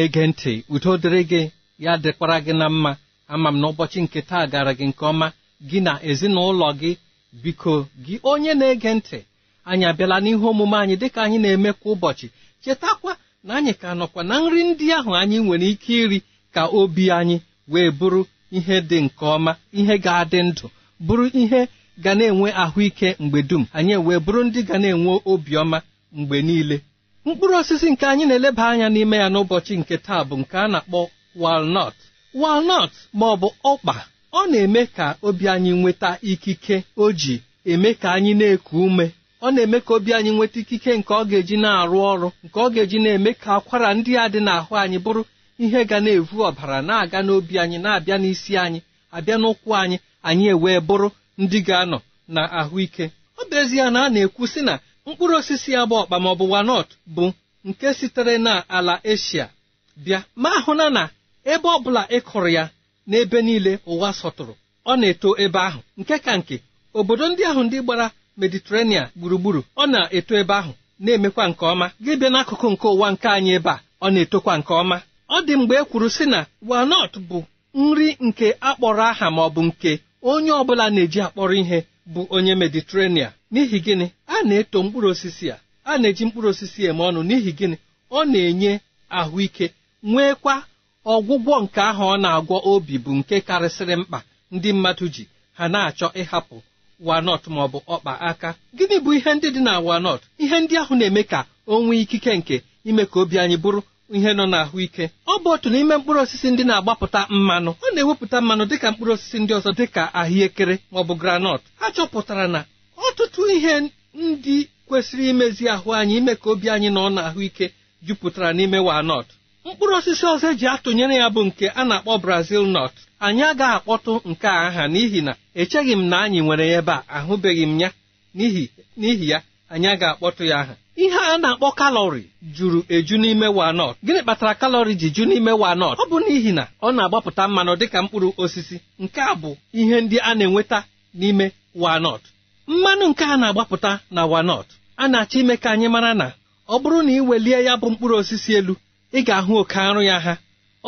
na-ege ntị udo dịrị gị ya dịkwara gị na mma ama m na ụbọchị nke taa gara gị nke ọma gị na ezinụlọ gị biko gị onye na-ege ntị anyị abịala n'ihe omume anyị dịka anyị na-eme kwa ụbọchị chetakwa na anyị ka nọkwa na nri ndị ahụ anyị nwere ike iri ka obi anyị wee bụrụ ihe dị nke ọma ihe ga-adị ndụ bụrụ ihe ga na-enwe ahụike mgbe dum anyị wee bụrụ ndị ga na-enwe obiọma mgbe niile mkpụrụ osisi nke anyị na-eleba anya n'ime ya n'ụbọchị nke taa bụ nke a na-akpọ walnut walnut ma ọ bụ ọkpa ọ na-eme ka obi anyị nweta ikike o ji eme ka anyị na-eku ume ọ na-eme ka obi anyị nweta ikike nke ọ ga-eji na-arụ ọrụ nke ọ ga-eji na-eme ka akwara ndị a dị n'ahụ anyị bụrụ ihe ga na-evu ọbara na-aga n'obi anyị na-abịa n'isi anyị abịa n'ụkwụ anyị anyị ewee bụrụ ndị ga-anọ na ahụike ọ bụ ezie na a na-ekwu sị na mkpụrụ osisi bụ ọkpa maọbụ wanọt bụ nke sitere na ala eshia bịa ma hụna na ebe ọbụla ị kụrụ ya n'ebe niile ụwa sọtụrụ ọ na-eto ebe ahụ nke ka nke obodo ndị ahụ ndị gbara mediterania gburugburu ọ na-eto ebe ahụ na-emekwa nke ọma gị bịa n'akụkụ nke ụwa nke anyị ebe a ọ na-etokwa nke ọma ọ dị mgbe e kwuru sị na wanot bụ nri nke akpọrọ aha maọbụ nke onye ọbụla na-eji akpọrọ ihe bụ onye mediterenia n'ihi gịnị a na-eto mkpụrụ osisi a a na-eji mkpụrụ osisi eme ọnụ n'ihi gịnị ọ na-enye ahụike nwekwa ọgwụgwọ nke ahụ ọ na-agwọ obi bụ nke karịsịrị mkpa ndị mmadụ ji ha na-achọ ịhapụ walnut ma ọ bụ ọkpa aka gịnị bụ ihe ndị dị na walnut ihe ndị ahụ na-eme ka o ikike nke ime ka obi anyị bụrụ ihe nọ n'ahụike ọ bụ otu n'ime mkpụrụ osisi ndị na-agbapụta mmanụ ọ na-ewepụta mmanụ dịka mkpụrụ osisi ndị ọzọ dịka ahụekere maọbụ granọt a chọpụtara na ọtụtụ ihe ndị kwesịrị imezi ahụ anyị ime ka obi anyị nọ n'ahụike jupụtara n'ime wanọt mkpụrụ osisi ọzọ eji atụnyere ya bụ nke a na-akpọ brazil nut anyị agaghị akpọtụ nke a aha n'ihi na echeghị m na anyị nwere ebe a ahụbeghị m ya n'ihi ya anyị agaghị akpọtụ ya aha ihe a na-akpọ kalọri juru eju n'ime wanọt gịnị kpatara kalọri ji ju n'ime wanọt ọ bụ n'ihi na ọ na-agbapụta mmanụ dịka mkpụrụ osisi nke a bụ ihe ndị a na-enweta n'ime wanọt mmanụ nke a na-agbapụta na walnut a na-achọ ime ka anyị mara na ọ bụrụ na ị welie ya bụ mkpụrụ osisi elu ị ga-ahụ oke arụ ya ha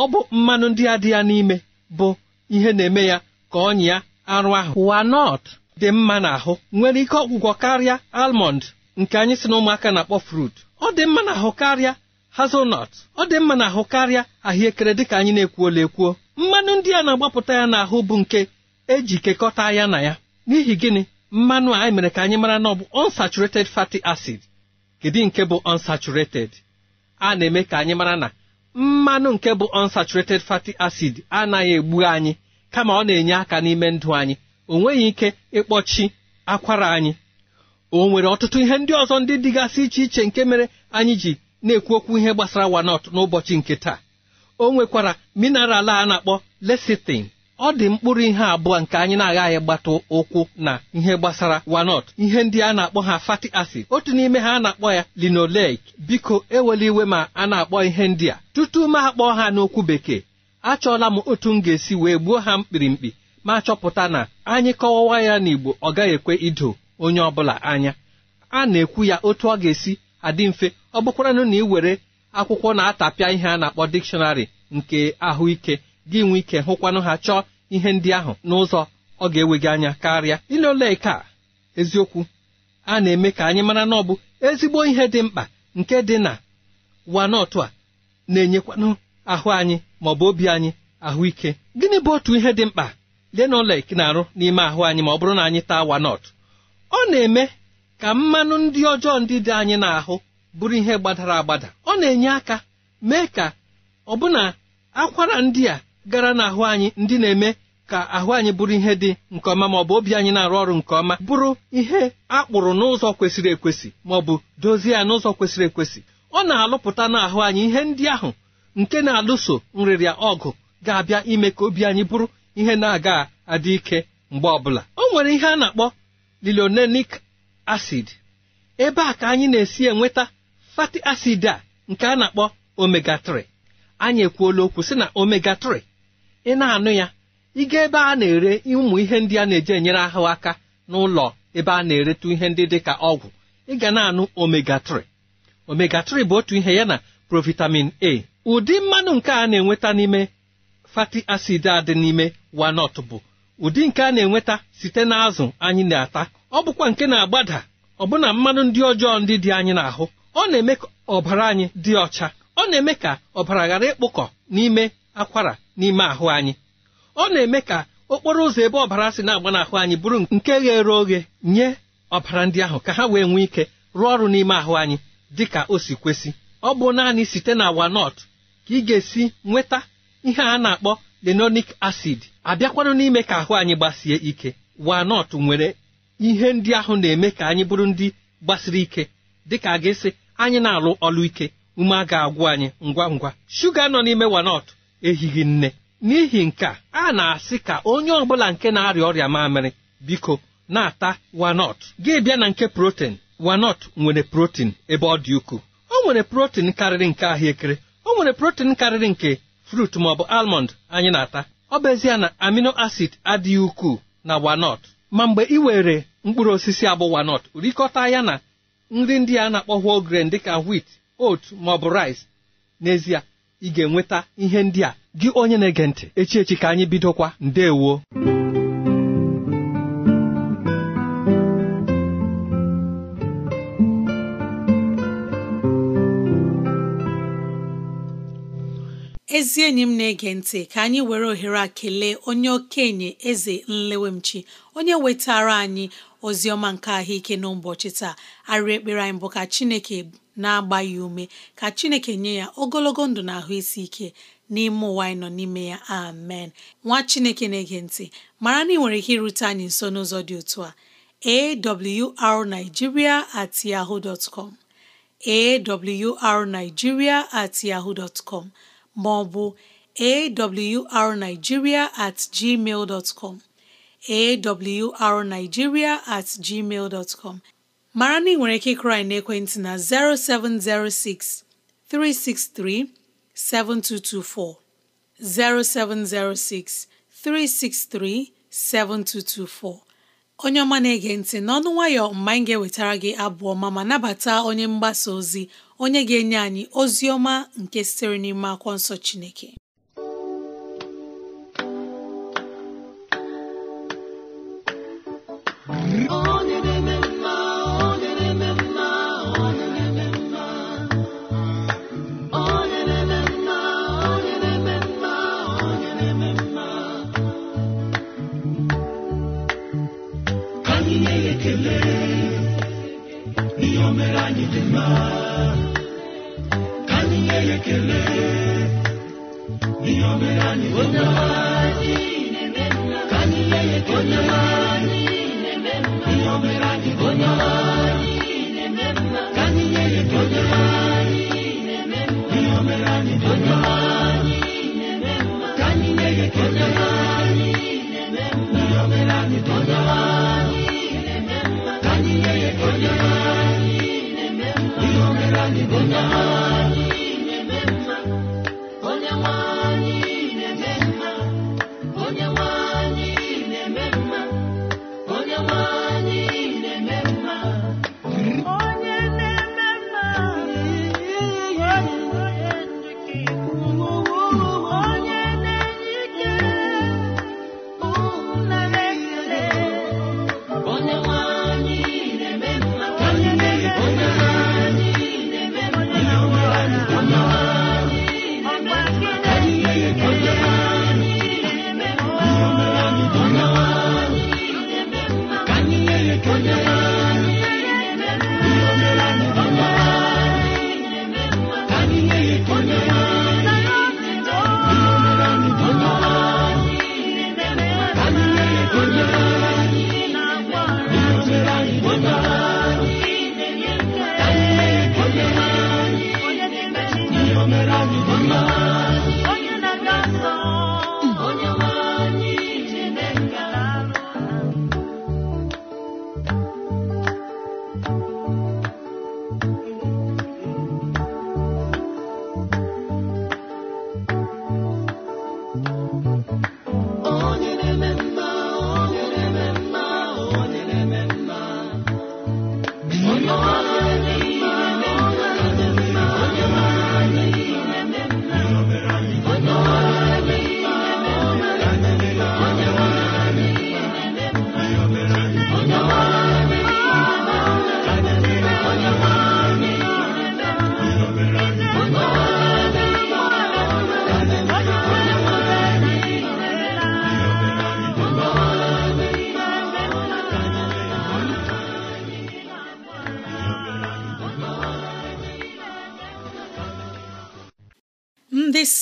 ọ bụ mmanụ ndị a dị ya n'ime bụ ihe na-eme ya ka ọnya ya arụ ahụ wanọt dị mma n'ahụ nwere ike ọgwụgwọ karịa almọnd nke anyị si na ụmụaka na-akpọ frut ọ dị mma na ahụ karịa hazelnut ọ dị mma na ahụ karịa ahụekere dịka anyị na-ekwuola ekwuo mmanụ ndị a na-agbapụta ya n'ahụ bụ nke eji kekọta ya na ya n'ihi gịnị mmanụ a e mere ka anyị mara na ọ bụ unsaturated fatty acid kedu nke bụ unsaturated a na-eme ka anyị mara na mmanụ nke bụ unsaturated fatty acid anaghị egbu anyị kama ọ na-enye aka n'ime ndụ anyị o nweghị ike ịkpọchi akwara anyị o nwere ọtụtụ ihe ndị ọzọ ndị dịgasị iche iche nke mere anyị ji na-ekwu okwu ihe gbasara wanot n'ụbọchị nke taa o nwekwara mineral a na-akpọ lesitin ọ dị mkpụrụ ihe abụọ nke anyị na-agaghị gbata ụkwụ na ihe gbasara wanot ihe ndị a na-akpọ ha fati acid otu n'ime ha a na-akpọ ya linoleic biko ewela iwe ma a na-akpọ ihe ndị a tutu m akpọọ ha n'okwu bekee achọọla m otu m ga-esi wee gbuo ha mkpirimkpi ma chọpụta na anyị kọwawa ya n'Igbo ọ gaghị ekwe ido onye ọbụla anya a na-ekwu ya otu ọ ga-esi adị mfe ọ bụkwaranụ na ị were akwụkwọ na-atapịa ihe a na-akpọ dikshọnarị nke ahụike gị nwee ike hụkwanụ ha chọọ ihe ndị ahụ n'ụzọ ọ ga-ewe gị anya karịa ile ole ka eziokwu a na-eme ka anyị mara na ọ bụ ezigbo ihe dị mkpa nke dị na wanọtụ a na-enyekwanụ ahụ anyị maọbụ obi anyị ahụike gịnị bụ otu ihe dị mkpa dị na na-arụ n'ime ahụ anyị ma ọ bụrụ na anyị taa wanọtụ ọ na-eme ka mmanụ ndị ọjọọ ndị dị anyị n'ahụ bụrụ ihe gbadara agbada ọ na-enye aka mee ka ọbụna akwara ndị a gara n'ahụ anyị ndị na-eme ka ahụ anyị bụrụ ihe dị nke ọma ma ọ bụ obi anyị na-arụ ọrụ nke ọma bụrụ ihe a kpụrụ n'ụzọ kwesịrị ekwesị ma ọ bụ dozie ya n'ụzọ kwesịrị ekwesị ọ na-alụpụta n'ahụ anyị ihe ndị ahụ nke na-alụso nrịrịa ọgụ ga-abịa ime ka obi anyị bụrụ ihe na-aga adị ike mgbe ọbụla o nwere ihe a na-akpọ lilionenik acid ebe a ka anyị na-esi enweta fati acid a nke a na-akpọ omega 3 anyị ekwuola okwu sị na omega 3 ị na-anụ ya ịga ebe a na-ere ụmụ ihe ndị a na-eji enyere ahụ aka n'ụlọ ebe a na-eretụ ihe ndị dị ka ọgwụ ị ga na-anụ omega 3 omega 3 bụ otu ihe ya na provitamin a ụdị mmanụ nke a na-enweta n'ime fati acid a dị n'ime walnut bụ ụdị nke a na-enweta site n'azụ anyị na-ata ọ bụkwa nke na-agbada ọbụna mmanụ ndị ọjọọ ndị dị anyị n'ahụ ọ na-eme ka ọbara anyị dị ọcha ọ na-eme ka ọbara ghara ịkpụkọ n'ime akwara n'ime ahụ anyị ọ na-eme ka okporo ụzọ ebe ọbara si na-agba n'ahụ anyị bụrụ nke ghere oghe nye ọbara ndị ahụ ka ha wee nwee ike rụọ ọrụ n'ime ahụ anyị dị ka o si kwesị ọ bụ naanị site na walnut ka ị ga-esi nweta ihe a na-akpọ lenonic acid abịakwanụ n'ime ka ahụ anyị gbasie ike wanọt nwere ihe ndị ahụ na-eme ka anyị bụrụ ndị gbasiri ike dịka a ga anyị na-alụ ọlụ ike ume a ga-agwụ anyị ngwa ngwa shuga nọ n'ime wanọt ehighị nne n'ihi nke a na-asị ka onye ọbụla nke na-arịa ọrịa mamịrị biko na-ata wanọt gị bịa na nke protein wanọt nwere protein ebe ọ dị ukwuu o nwere protein karịrị nke ahụekere o nwere protein karịrị nke frut maọbụ almond anyị na-ata ọ bụ ezie na amino acid adịghị ukwuu na wanot ma mgbe ị were mkpụrụ osisi abụ wanot rikọta ya na nri ndị a na-akpọ whole grain dịka wit oat maọbụ rice n'ezie ị ga-enweta ihe ndị a gị onye na-ege ntị echi ka anyị bidokwa ndewo ezi enyi m na-ege ntị ka anyị were ohere a kelee onye okenye eze nlewemchi onye wetara anyị ozi ọma nke ahụike n'ụbọchị taa arị ekpere anyị bụ ka chineke na-agba ya ume ka chineke nye ya ogologo ndụ na ahụ isi ike n'ime ụwa anyị nọ n'ime ya amen nwa chineke na-ege ntị mara na ị nwere ike irute anyị nso n'ụzọ dị otu a awrnigeria at yahoo com at yahoo dot ma ọ bụ awrnigeria at gmail dot com awrnigeria at gmail dot com mara na ị nwere ike ịkụrị n'ekwentị na 0706 363 7224 0706 363 7224 onye ọma na-ege ntị n'ọnụ nwayọ mgbe anyị ga-ewetara gị abụọ ọma ma nabata onye mgbasa ozi onye ga-enye anyị ozi ọma nke sitere n'ime akwụkwọ nsọ Chineke oh.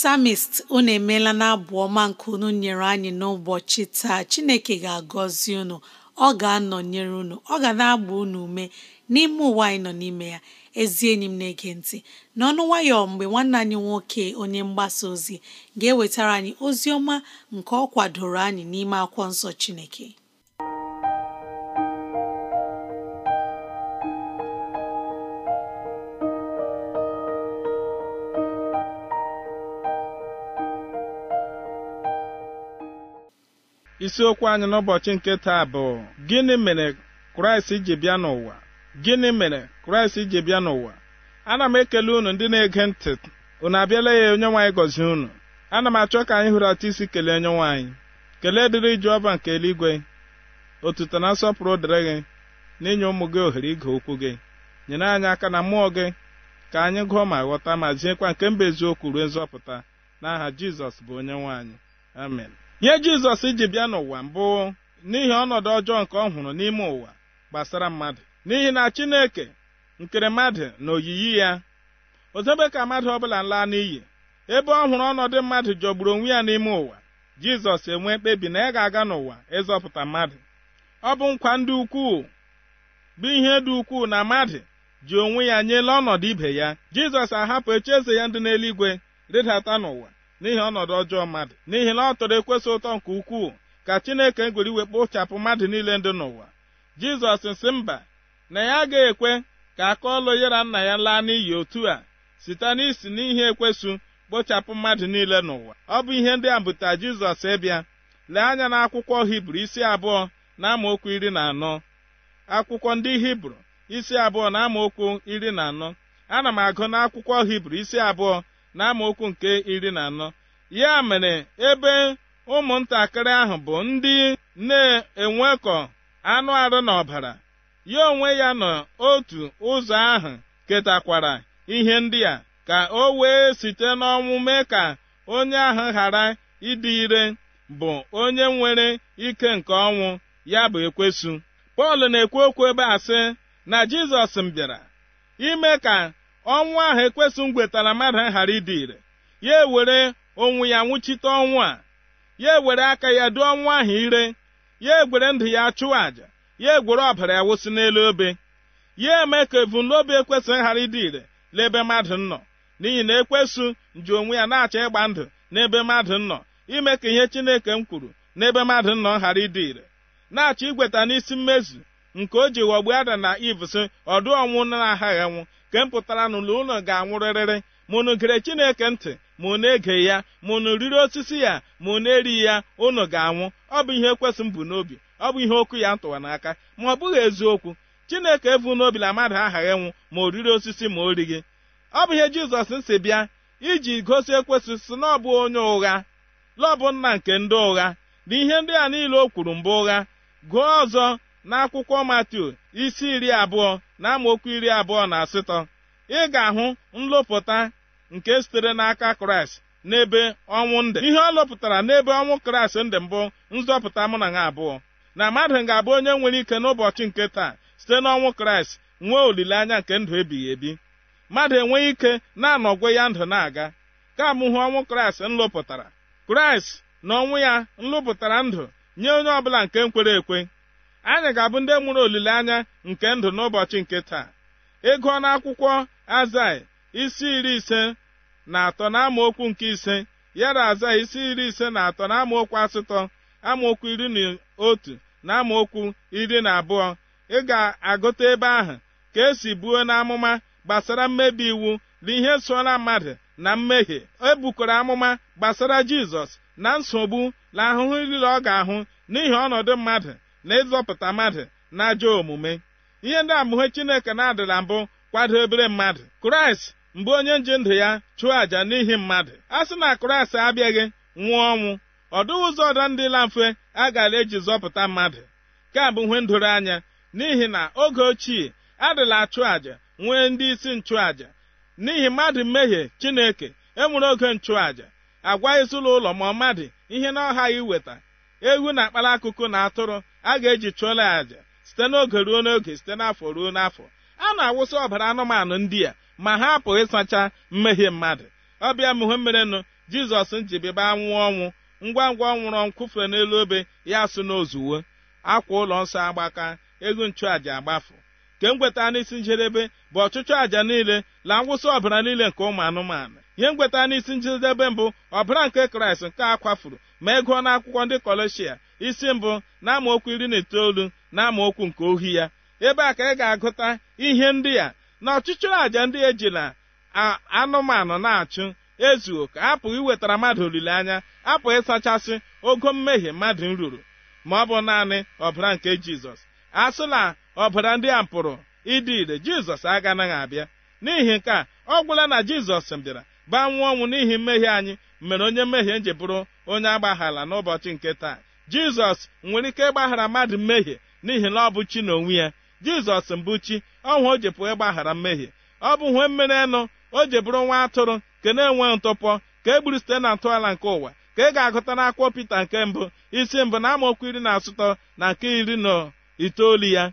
psalmist unu emeela na abụ ọma nke unu nyere anyị n'ụbọchị taa chineke ga-agọzi unu ọ ga-anọnyere unu ọ ga na-agba unu ume n'ime ụwa anyị nọ n'ime ya ezi enyi m na-ege ntị n'ọnụ nwayọ mgbe nwanne anyị nwoke onye mgbasa ozi ga-ewetara anyị ozi ọma nke ọ kwadoro anyị n'ime akwụkwọ nsọ chineke isiokwu anyị n'ụbọchị nke taa bụ gịnị mere kraịst ji bịa n'ụwa gịnị mere kraịst ji bịa n'ụwa ana m ekele unu ndị na-ege ntị unu abịala ya onye nwaanyị gọzie unu ana m achọ ka anyị hụrata isi kelee onye nwaanyị kelee dịrị ọba nke eluigwe otuto na nsọpụrụ dịrị gị n'inye ụmụ gị ohere ige okwu gị nyere anyị aka na mmụọ gị ka anyị gụọ ma ghọta ma ziekwa nke mba eziokwu ruo nzọpụta n'aha Jizọs bụ onye nwaanyị amen ihe jizọs ji bịa n'ụwa mbụ n'ihi ọnọdụ ọjọọ nke ọ hụrụ n'ime ụwa gbasara mmadụ n'ihi na chineke nkere mmadụ na oyiyi ya ozebe ka mmadụ ọbụla laa n'iyi ebe ọ hụrụ ọnọdụ mmadụ jọgburu onwe ya n'ime ụwa jizọs enwee mkpebi na ya ga-aga n'ụwa ịzọpụta mmadụ ọ bụ nkwa ndị ukwuu bụ ihe dị ukwuu na mmadụ ji onwe ya nyela ọnọdụ ibe ya jizọs ahapụ echi eze ya ndị n'eluigwe rịdata n'ụwa n'ihi ọnọdụ ọjọọ mmadụ n'ihi na ọ tọrọ ekwesị ụtọ nke ukwuu ka chineke ngwere iwe kpochapụ mmadụ niile ndị n'ụwa jizọs si mba na ya agaghị ekwe ka aka ọlụ yara nna ya laa n'iyi otu a site n'isi n'ihe ekwesu kpochapụ mmadụ niile n'ụwa ọ bụ ihe ndị a bụta jizọs ịbịa lee anya na akwụkwọ hibru isi abụọ na amaokwu iri na anọ akwụkwọ ndị hibru isi abụọ na amaokwu iri na anọ ana m agụ n'akwụkwọ hibru isi abụọ na nke iri na anọ ya mere ebe ụmụntakịrị ahụ bụ ndị na-enwekọ anụ arụ na ọbara ya onwe ya otu ụzọ ahụ ketakwara ihe ndị a ka o wee site n'ọnwụ mee ka onye ahụ ghara ịdị ire bụ onye nwere ike nke ọnwụ ya bụ ekwesụ. pọl na-ekwu okwu ebe a sị na jizọs m bịara ime ka ọnwụ ahụ ekwesụ na mmadụ ghara ịdị ire ya ewere onwe ya nwụchite ọnwụ a ya ewere aka ya dụọ ọnwụ ahụ ire ya egwere ndụ ya chụọ àjà ya egwere ọbara ya wụsị n'elu obe ya eme ka ebumnobi ekwesị ghara ịdị ire n'ebe mmadụ nọ n'ihi na ekwesụ ji onwe ya na-achọ ịgba ndụ n'ebe mmadụ nọ ime ka ihe Chineke m kwuru n'ebe mmadụ nọ ghara ịdị ire na-achọ igweta n'isi mmezu nke o ji ghọgbu ada na ivs ọdụ ọnwụ na-aghaghị anwụ nke m pụtara na ụlọ ga-anwụrịrịrị mụnụ gere chineke ntị ma na ege ya mụnụ riri osisi ya ma na erighị ya ụnụ ga-anwụ ọ bụ ihe ekwesị m bụ n'obi ọ bụ ihe okwu ya ntụwa n'aka ma ọ bụghị eziokwu chineke evu n'obi na mmadụ aghaghị nwụ ma o riri osisi ma o righị ọ bụ ihe jizọs si bịa iji gosi ekwesị si na ọ bụ onye ụgha lọọ bụ nna nke ndị ụgha na ihe ndị a niile o kwuru mbụ ụgha gụọ ọzọ n'akwụkwọ Matiu isi iri abụọ na amaokwu iri abụọ na asatọ ị ga-ahụ nlụpụta nke sitere n'aka Kraịst n'ebe ọnwụ ndị ihe ọ lọpụtara n'ebe ọnwụ Kraịst ndị mbụ nzọpụta mụ na ha abụọ na mmadụ ga-abụ onye nwere ike n'ụbọchị nke taa site n'ọnwụ Kraịst nwee olileanya nke ndụ ebighị ebi mmadụ enweghị ike na-anọgwe ya ndụ na-aga ka hụ ọnwụ Kraịst nlụpụtara Kraịst na ọnwụ ya nlụpụtara ndụ nye onye ọbụla nke kwere ekwe anyị ga-abụ ndị mụrụ olileanya nke ndụ n'ụbọchị nke taa ịgụọ akwụkwọ azai isi iri ise na atọ na amaokwu nke ise yara azai isi iri ise na atọ na amaokwu asatọ amaokwu iri na otu na amaokwu iri na abụọ ị ga-agụta ebe ahụ ka esi buo n'amụma gbasara mmebi iwu na ihe sola mmadụ na mmehie e amụma gbasara jizọs na nsogbu na ahụhụ niile ọ ga-ahụ n'ihi ọnọdụ mmadụ na ịzọpụta mmadụ na ajọ omume ihe ndị amụhe chineke na-adịla mbụ kwadobere mmadụ kraịst mgbe onye nji ndụ ya chụọ àjà n'ihi mmadụ a sị na kraịst abịaghị nwụọ ọnwụ ọdụ ụzọ ọdọ ndị la mfe a gara eji zọpụta mmadụ ka bụ ihe ndoro anya n'ihi na oge ochie adịla achụ àjà nwee ndị isi nchụàjà n'ihi mmadụ mmehie chineke enwere oge nchụàjà agwa ezinụlọ ma ọ mmadụ ihe na ọha ya iweta ewu na akpara akụkụ na atụrụ a ga-eji chụọla àjà site n'oge ruo n'oge site n'afọ ruo n'afọ a na-awụsa ọbara anụmanụ ndị a ma ha apụghị ịsacha mmehie mmadụ ọbịa muhemmerenụ jizọs njibiba anwụ ọnwụ ngwa ngwa ọnwụrọ nwụrụ n'elu obe ya sụ n'ozuwo akwa ụlọ nsọ agbaka ego nchụàja agbafu ke mgweta n'isi njedebe bụ ọchụchụ àjà niile na ngwụsị ọbara niile nke ụmụ anụmanụ ihe mgweta n'isi njedebe mbụ ọbara nke kraịst nke a kwafuru ma ego n'akwụkwọ ndị kọleshia isi mbụ na amaokwu iri na itoolu na amaokwu nke ohi ya ebe a ka ị ga-agụta ihe ndị a na ọchịchịrị àjà ndị ejila anụmanụ na-achụ ezuo ka apụghị iwetara mmadụ olileanya apụghị ịsachasị ogo mmehie mmadụ ruru ma ọ bụ naanị ọbara nke jizọs asịla ọbara ndị a pụrụ ịdị ire jizọs agaghị abịa n'ihi nke a ọ gwụla na jizọs bịara baa ọnwụ n'ihi mmehie anyị mere onye mmehie ji bụrụ onye agbaghala n'ụbọchị nke taa jizọs nwere ike ịgbaghara mmadụ mmehie n'ihi na ọ bụ chi na onwe ya jizọs mbụ chi ọnwa o jepụ ịgbaghara mmehie ọ bụ hwe mmeri enụ o bụrụ nwa atụrụ ka na enwe ntụpọ ka e site na ntọala nke ụwa ka ị e ga-agụta n'akwụkwọ pita nke mbụ isi mbụ na amaokwu iri na asụtọ na nke iri na itoolu ya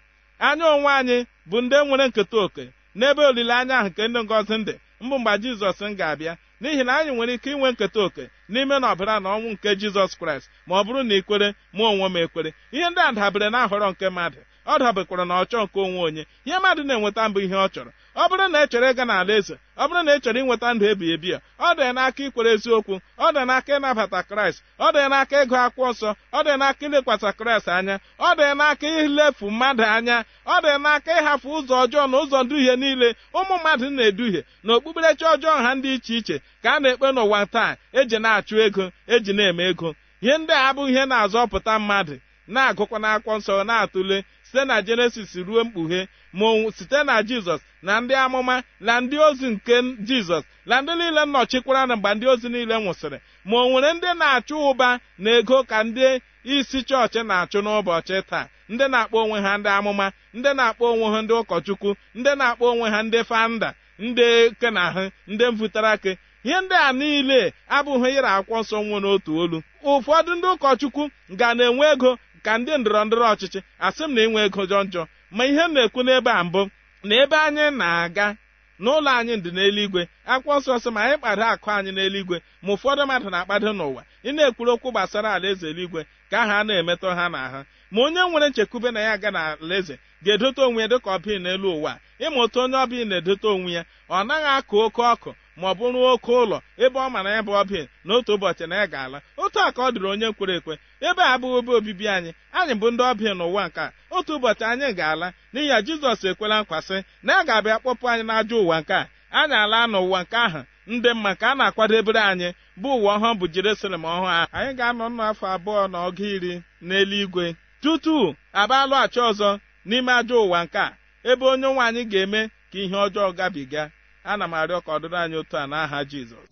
anya onwe anyị bụ ndị nwere nketa oke n'ebe olileanya ahụ nke ndị ngozi ndị mbụ mgbe jizọs m ga-abịa n'ihi na anyị nwere ike inwe nketa oke n'ime na ọbara na ọnwụ nke jizọs kraịst ma ọ bụrụ na ikwere mụ onwe m ekwere ihe ndị a dabere na ahọrọ nke mmadụ ọ dabekwara na ọchọ nke onwe onye ihe mmadụ na-enweta mbụ ihe ọ chọrọ ọ bụrụ na echere ịga n'ala eze ọ bụrụ na echere ịnweta ndụ ebi ebi a ọ dị n'aka ikwere eziokwu ọ dị n'aka ịnabata kraịst ọ dị n'aka ịgụ akwụkwọ nsọ ọ dị n'aka ilekwasa kraịst anya ọ dị n'aka ilefu mmadụ anya ọ dị n'aka ịhapụ ụzọ ọjọọ na ụzọ nduhie niile ụmụ mmadụ na-eduhie na okpukperechi ọjọọ ha ndị iche iche ka a na-ekpe n'ụwa taa eji na-achụ ego eji na-eme ego ihe ndị a abụghị ihe na-azọpụta mmadụ na-agụkwa n'akwụkwọ nsọ na-atụle site na jenesis ruo mkpughe ma site na jizọs na ndị amụma na ndị ozi nke jizọs na ndị niile nnọchikwara na mgbe ndị ozi niile nwụsịrị ma o nwere ndị na-achụ ụba na ego ka ndị isi chọọchị na-achụ n'ụbọchị taa ndị na-akpọ onwe ha ndị amụma ndị na-akpọ onwe ha ndị ụkọchukwu ndị na-akpọ onwe ha ndị fanda ndị kenahụ ndị mvụtara ihe ndị a niile abụghị ịra akwụkwọ nsọ nwere n'otu olu ụfọdụ ndị ụkọchukwu ga na-enwe ego ka ndị ndọrọ ndọrọ ọchịchị asị m na inwe ego jọ njọ ma ihe m na-ekwu n'ebe a mbụ na ebe anyị na-aga n'ụlọ anyị ndị n'eluigwe akwụkwọ nsọ ma anyị kpado akụ anyị n'eluigwe ma ụfọdụ mmadụ na-akpado n'ụwa ị na-ekwuru okwu gbasara alaeze eluigwe ka aha a na-emetọ ha ha ma onye nwere nchekwube na ya aga na eze ga-edote onwe ya dịka ọbịa n'elu ụwa ịma otu onye ọbịa na-edote onwe ya ọ naghị akụ oke ọkụ ma ọ bụ rụọ oke ụlọ ebe ọ mara ebe ọ bi n'otu ụbọchị na ya ga-ala otu a ka ọ dịrị onye nkwere ekwe ebe a abụghị ebe obibi anyị anyị bụ ndị ọbịa n'ụwa nke otu ụbọchị anyị ga-ala n'ihi ya jizọs ekwela nkwasị na a ga-abịa kpọpụ anyị n'ajọ ụwa nke a anyị ala n'ụwa nke ahụ ndị mma ka a na-akwadebere anyị bụ ụwa ọhụụ bụ jerusalem ọhụụ ahụ anyị ga-anọ nnọọ afọ abụọ na ọga iri n'eluigwe tutu abalụghachi ọzọ n'ime ajọ ụwa nke ebe onye nwe anyị ga-eme ka ihe ọjọọ gabiga ana m arịọ ka ọdịrị anyị otu a n'aha Jizọs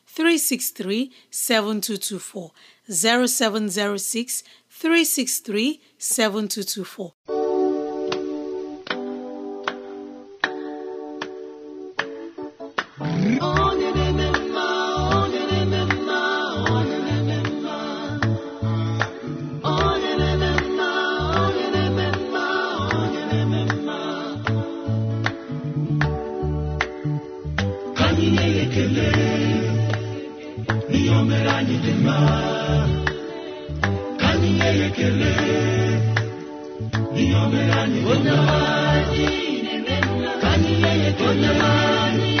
363 7224 0706 363 7224 anyị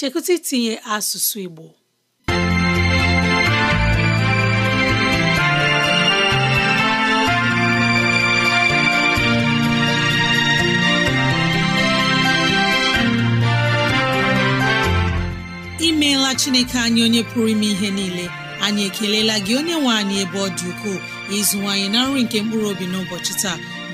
chekụta itinye asụsụ Igbo imeela Chineke anyị onye pụrụ ime ihe niile anyị ekelela gị onye nwe anyị ebe ọ dị ukwuu ịzụwanyị na nri nke mkpụrụ obi n'ụbọchị taa